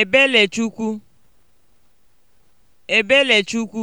Ebelechukwu Ebelechukwu